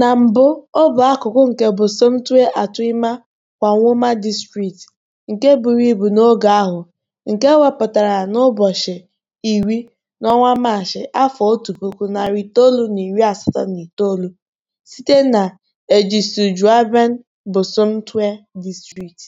Na mbụ, ọ bụ akụkụ nke Bosomtwe Atuima Kwanwoma District nke buru ibu n'oge ahụ, nke e wepụtara n'ụbọchị iri, n'ọnwa Maachị, afọ otu puku, narị itoolu na iri asatọ na itoolu, site na Ejitsujaban Bosomtwe District.